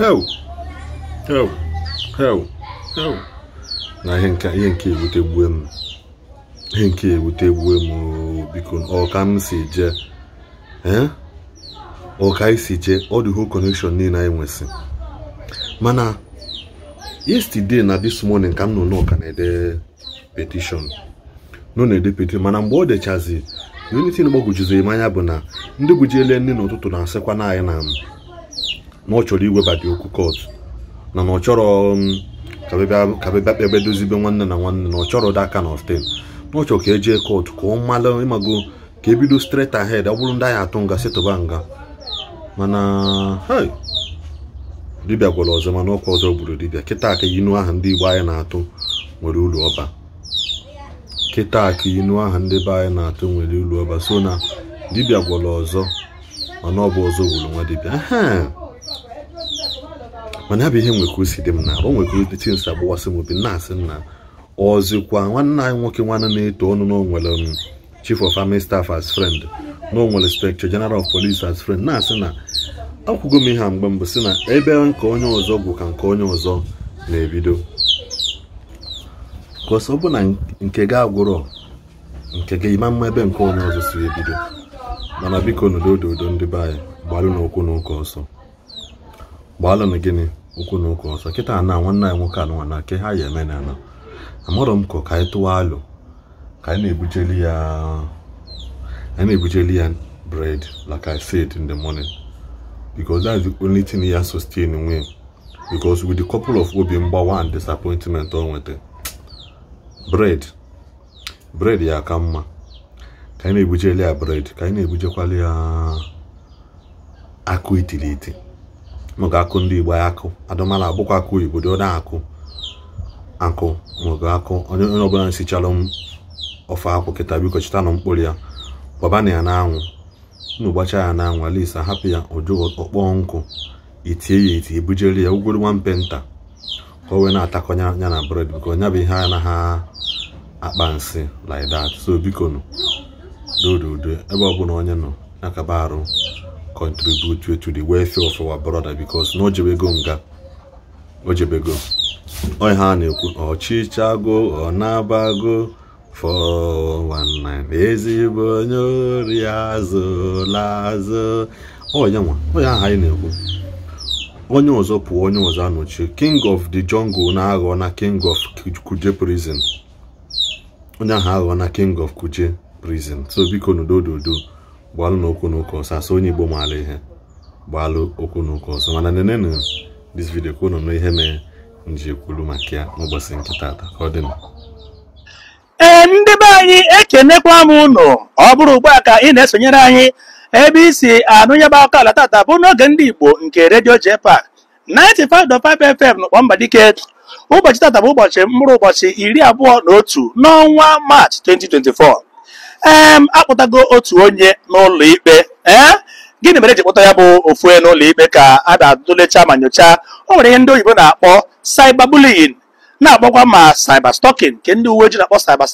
ho ho ho ho na ihe nke ewutegbuo m ihe nke ewutegbuo m oh, biko ọka m si jee eh? ọka anyị si jee ọ dị whole connection niile anyị nwesị mana yesterday na this morning ka m nọ n'ọka na-ede petition nọ na-ede petition mana mgbe ọ dechazi unity gbagwojizi m anya bụ na ndị gbujiele nne n'ụtụtụ na-asịkwa na anyị na m na ọ chọrọ iwebata okwu kot na na ọ chọrọ um, ka bịa kpebe dozibe nwanne na nwanne na ọ chọrọ that kind of thing na ọ chọrọ ka eje kọt ka ọ mala ịmago ka ebido straight ahead ọ bụrụ ndị anyị atụ nga setụba nga mana dibịa gwara ọzọ mana ọkwa ọzọ gburu dibịa kịta ka inu aha ndị igbo anyị na-atụ nwere ụlọ ọba kịta inu ahụ ndị be anyị na-atụ nwere ụlọ ọba so na dibịa gwara ọzọ mana ọ bụ ọzọ gburu nwa dibịa mana bụ ihe nwekwa si dị m na arụ o nwekwa ụdị chi nsa gbawasị m obi na-asị nna ọzikwa nwanne anyị nwoke nwanne na-eto ọnụ na onwere um, chief of army staff as friend na onwere inspector general of police as friend na-asị na akwụgo m ihe a mgbe mbụ si na ebe nke onye ọzọ gwụ ka nke onye ọzọ na-ebido kọsọ ọ bụ na nke gị agwụrọ nke gị ịma mma ebe nke onye ọzọ si ebido mana biko n'udo odo ndị be anyị gbalụ n'okwu n'ụka ọsọ gbalụ na gịnị ụkwụ na ụka ọsọ kịta na nwanne anyị nwoke anụnwa na nke ha ya eme na anọ amụrụ m ka ka anyị tụwa alụ ka anyị na-ebujeli ya anyị na bread like I said in the morning because is the only thing ya sustain nwe because with the couple of obi mgbawa and disappointment o nwete bread bread ya aka mma ka anyị na-ebujeli ya bread ka anyị na-ebujekwala ya akụ iti. m akụ ndị Igbo akụ adụmala abụkwa akụ oyibo na-akụ akụ mụga akụ onye onye ọbụla nsichara m ofe akwụ kịta biko chịta nụ mkpụrụ ya gbabana ya n'anwụ unu ya n'anwụ alisa hapụ ya oju ọkpọ nkụ itie ya eti ebujere ya ugwuru nwampe nta ka o wee na-atakọnya ya na bred biko nya bụ ihe a naghị akpa nsị like so biko nụ dododo ebe ọ onye nọ na kaba arụ contribute to the welfare of our brother because na ojebego nga ojebego onye ha na-ekwu ọchịchago ọ na-abago 419 ezigbo onye ori azụ lazụ onye nwa onye ahụ anyị na-ekwu onye ọzọ pụọ onye ọzọ anọchi king of the jungle na-aghọ na king of kuje prison onye ahụ aghọ na king of kuje prison so biko n'udo dodo gbalụ n'okwu okwu ọsọ asọ onye igbo maala ihe gbalụ okwu na ọsọ mana nenenu dis vidio ka unu ihe mere nji ekwuru maka ya n'ụbọchị nke tata ka ọ dị ee ndị be anyị ekenekwa m ụlọ ọ bụrụ ugbu a ka ị na-esonyere anyị ebe isi anụ nyebe akụkọ ala taata bụ n'oge ndị igbo nke redio JPAC 95.5 FM n'ụkpọ Mbadike ụbọchị taata bụ ụbọchị mkpụrụ ụbọchị iri abụọ na otu n'ọnwa March 2024 ee akpụtago otu onye n'ụlọ ikpe ee eh? gịnị mere eji kpụta ya bụ ofue n'ụlọ ikpe ka a na-atụlecha ma nyochaa o nwere ihe ndị oyibo na-akpọ cyber na-akpọkwa ma cyber stalking nke ndị uwe ojii na-akpọ cyber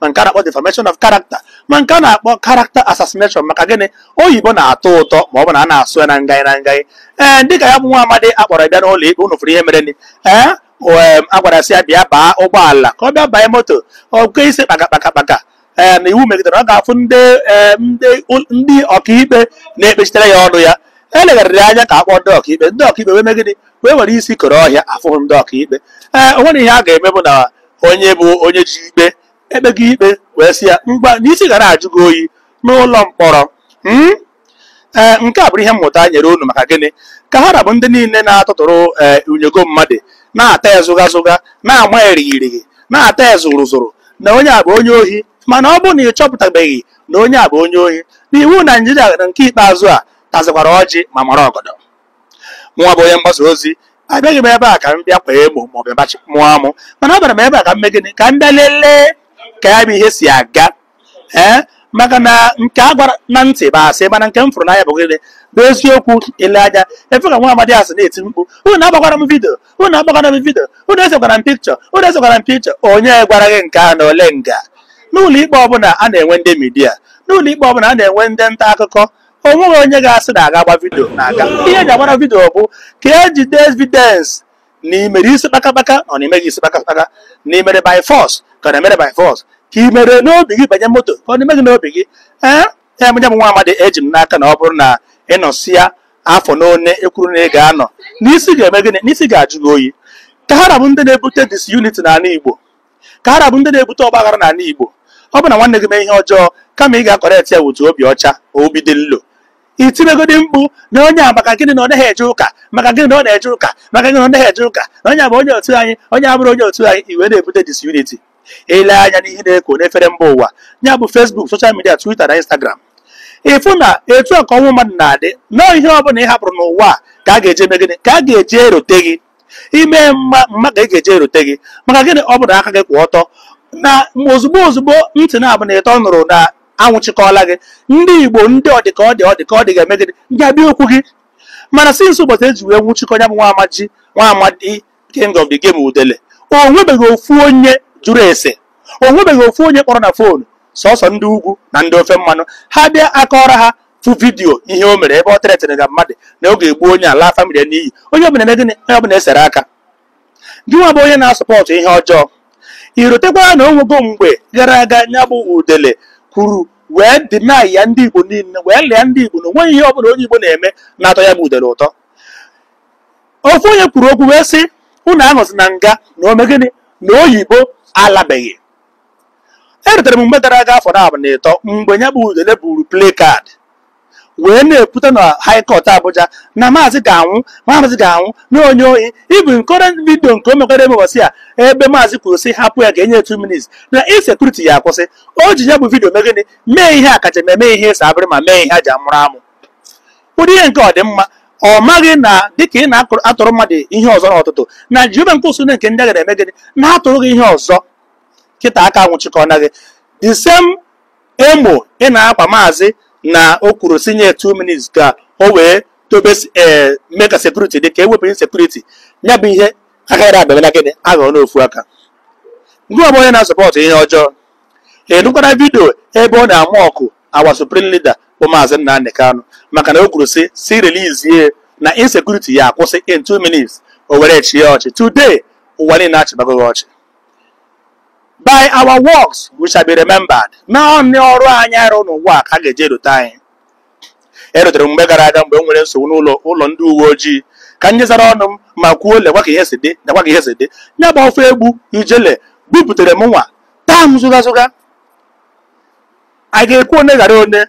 ma nke a na-akpọ defamation of character ma nke a na-akpọ character assassination maka gịnị oyibo na-atọ ụtọ ma ọ bụ na a na-asụ ya na ngaị na ngaị ee eh, dịka ya bụ nwa amadi akpọrọ bịa n'ụlọ ikpe unu fụrụ ihe mereni ee eh? a gwara sị ya bịa baa ụgbọala ka ọ bịa banye moto ọ kwe isi kpaka kpaka kpaka Eh, na iwu megidere ọ ga-afụ ndị eh, ọkaikpe na-ekpechitere ya ọnụ ya elegharịrị anya ka akpọ ndị ọkaikpe ndị ọkaikpe wee megide wee nwere isi koro ọhịa afụhụ ndị ọkaikpe ee eh, o nwere ihe a ga-eme bụ na onye bụ onye ji ikpe ekpego ikpe wee si ya mgba n'isi gara ajụ gị oyi n'ụlọ mkpọrọ hmm? ee nke a bụrụ ihe mmụta nyere unu maka gịnị ka ha rabụ ndị niile na-atụtụrụ ee unyego mmadụ na-ata ezụga na-ama erighirighị na-ata ezụrụzụrụ na onye a bụ onye ohi mana ọ bụrụ na ị chọpụtabeghị na onye a bụ onye ohi na iwu naijiria na nke ikpeazụ a tazikwara ọjị ma mara ọgọdọ nwa bụ onye mgbasa ozi abịaghị m ebe a ka m bịa kwee emo maọbụ bachi mụọ amụ mana bara m ebe a ka m mee gịnị ka m bịa lelee ka ya bụ ihe si aga ee maka na nke a gwara na ntị bụ asị mana nke m fụrụ n'anya bụ gịnị bụ eziokwu ile anya efe ka nwa amadi asị na-eti mkpu unu agbakwara m vidio unu agbakwara m vidio unu esekwara m pikchọ unu esekwara m pikchọ onye gwara gị nke a na ole nga n'ụlọ ikpe ọbụla a na-enwe ndị midia n'ụlọ ikpe ọbụla a na-enwe ndị nta akụkọ o nweghị onye ga-asị na aga agba vidio na-aga ihe eji agbara vidio bụ ka ejide evidence na imere isi kpakakpaka ọ na imeghị isi kpakakpaka na imere by force ka ọ na-emere by force ka i mere n'obi gị banye moto ka ọ na-emeghị n'obi gị ee ya m nwa amadi eji m n'aka na ọ bụrụ na ịnọsịa afọ n'one ekwuru na ị ga-anọ n'isi ga-eme gịnị n'isi ga-ajụ gị oyi ka ha ndị na-ebute disunity n'ala Igbo ka ara bụ ndị na-ebute ọgbaghara n'ala Igbo ọ bụ na nwanne gị mee ihe ọjọọ kama ị ga-akọrekt ya wutu obi ọcha obi dị nlo i mkpu na onye a maka gịnị na ọ naghị eje ụka maka gịnị na ọ na-eje ụka maka gịnị na ọ naghị eje ụka na onye a bụ onye otu anyị onye abụrụ onye otu anyị iwe na-ebute disunity ele anya n'ihe na-eko n'efere mba ụwa ya bụ fesbuk soshal midia, twita na Instagram ịfụ na etu ọnwụ mmadụ na-adị nọọ ihe ọ bụla ị hapụrụ n'ụwa ka a ga-eje megide ka a ga-eji erote gị ime mma mma ka e ga eje erute gị maka gịnị ọ bụrụ aka gị kwụ ọtọ na ozugbo ozugbo ntị na-abụ na ịtọ nụrụ na anwụchikọla gị ndị igbo ndị ọdịka ọdị ọdịka ọdị ga-eme gịnị ndị okwu gị mana si nso ụbọchị eji wee nwụchikọ ya bụ nwa amaji nwa amadi Kingdom of the game udele o nwebeghị ofu onye jụrụ ese o nwebeghị ofu onye kpọrọ na foonu sọsọ ndị ugwu na ndị ofe mmanụ ha bịa akọrọ ha fụ vidiyo ihe o mere ebe ọ tere na mmadụ na oge egbu onye ala famili n'iyi onye ọbụla na gịnị onye ọbụla esere aka gị nwa bụ onye na-asọpọtụ ihe ọjọọ rutekwara na onwego mgbe gara aga nya bụ udele kwuru wee dina ya ndị igbo niile wee lịa ndị igbo na onweghị ihe ọbụla onye igbo na-eme na-atọ ya bụ udele ụtọ ofu onye kwuru okwu wee sị unu anọzi na nga na ome gịnị na oyibo alabeghị erutere m mgbe gara aga afọ na abụ na ịtọ mgbe nya bụ udele buru plekad wee na-ekwute na high abụja Abuja na maazị ga-anwụ maazị ga-anwụ na onye oyi ibu nkọrọ vidio nke o mekwara emebosi ya ebe maazị kwuru hapụ ya ga-enye 2 minutes na insekuriti ya akwụsị o ji ya bụ vidio megịnị mee ihe akajem eme ihe ịsa abịrị ma mee ihe aja amụrụ amụ ụdị ihe nke ọdịmma ọ maghị na dịka ị na-atụrụ mmadụ ihe ọzọ n'ọtụtụ na Jehova nke usoro nke ndị agha eme gịnị na-atụrụ gị ihe ọzọ kịta aka nwụchikọ na gị the emo ị na-akwa maazị na o kwuru si nye 2 minutes ka o wee dobe eh, mee ka sekuriti dị ka ewepụ sekuriti ya bụ ihe agaghị abịa na gịnị aghọọ n'ofu aka ndị ọbụ onye na-asọpọtụ ihe ọjọọ enukwara vidio ebe ọ na-amụ ọkụ awa supreme leader bụ maazị Nnamdi Kanu maka na o kwuru si si relizie na insekuriti ya akwụsị in 2 minutes o were chie ọchị today ụwa niile achịbagoghị ọchị by our works we shall be remembered ma ọrụ anyị arụ n'ụwa ka a ga-eji erute anyị erutere mgbe gara aga mgbe m nwere nsogbu n'ụlọ ụlọ ndị uwe ojii ka m nyezara ọnụ m ma kwuo lekwa ka ihe si dị lekwa ka ihe si dị ya bụ ofe egbu ijele buputere m nwa taa m zụga zụga a ga-ekwu one ghara one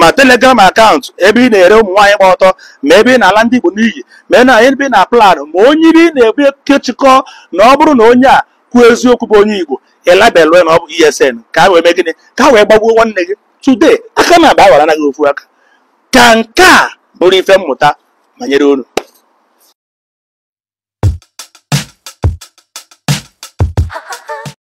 ma telegram akaụntụ ebe ị na-ere ụmụ nwaanyị gba ọtọ ma ebe ị na-ala ndị Igbo n'iyi ma ị na-ebe ị na-aplan ma onye ebe ị na-ebu kechikọ na ọ bụrụ na onye a kwuo eziokwu bụ onye Igbo elabelụ na ọ bụ ESN ka a wee mee ka a wee gbagbuo nwanne gị tụdee aka na-aba awara anaghị ofu aka ka nke a bụrụ ife mmụta banyere unu